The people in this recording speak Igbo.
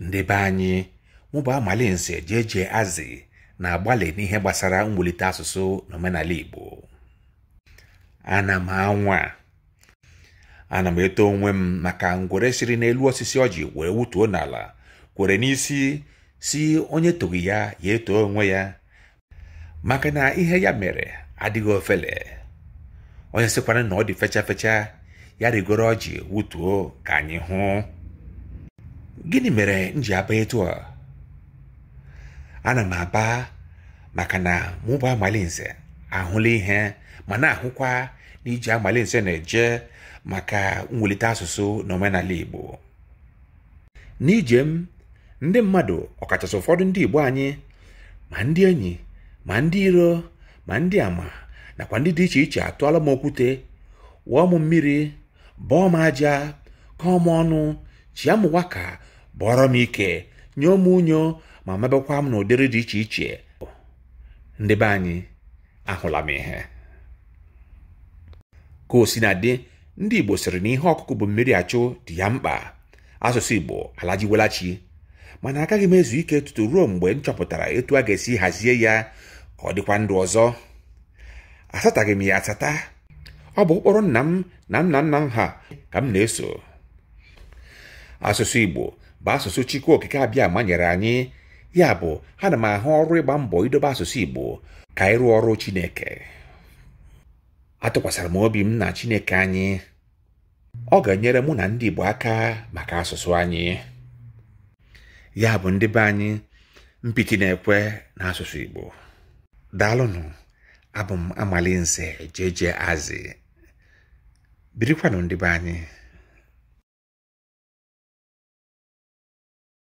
Ndebe anyị mụ bụ amalinze jeje azị na-agbalị n'ihe gbasara mwulite asụsụ na omenala igbo ana m anwa ana m eto onwe m maka ngwere siri n'elu osisi ọjị were wutuo n'ala kwere n'isi si onye toghi ya ya etoo onwe ya maka na ihe ya mere adịghị ofele onye sịkwara na ọ dị fecha fecha ya rigoro ọjị wutuo ka anyị hụ gịnị mere m ji aba etu a ana m aba maka na mụba amalinze ahụla ihe ma na-ahụkwa na iji amalinze na-eje maka mwulite asụsụ na omenala Igbo n'ije m ndị mmadụ ọkachasị ụfọdụ ndị Igbo anyị ma ndị enyi ma ndị iro ma ndị ama nakwa ndị dị iche iche atụọla m okwute wụọ m mmiri bọọ m aja kọọ ọnụ chia m waka bụọrọ m ike nye m unyo ma mebekwa m n'ụdịrị dị iche iche ndị be anyị ahụla m ihe ka o si na dị ndị Igbo sịrị na ihe ọkụkụ bụ mmiri achụ dị ya mkpa asụsụ Igbo alajiwelachi mana agaghị m ezu ike tutu ruo mgbe m chọpụtara etu a ga-esi hazie ya ka ọ dịkwa ndụ ọzọ asataghị m ya asata ọ bụ ụkpụrụ nna m na nna nna m ha ka m na-eso asụsụ Igbo bụ asụsụ chukwu okike abịa nyere anyị ya bụ ana m ahụ ọrụ ịgba mbọ idobe asụsụ igbo ka ịrụ ọrụ chineke atụkwasịra m obi m na chineke anyị ọ ga-enyere mụ na ndị igbo aka maka asụsụ anyị ya bụ ndị be anyị mpiti na-ekwe na asụsụ igbo daalụnụ abụ m amalinze jeje azị birikwanụ ndị be anyị